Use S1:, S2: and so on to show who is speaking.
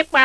S1: ịkpa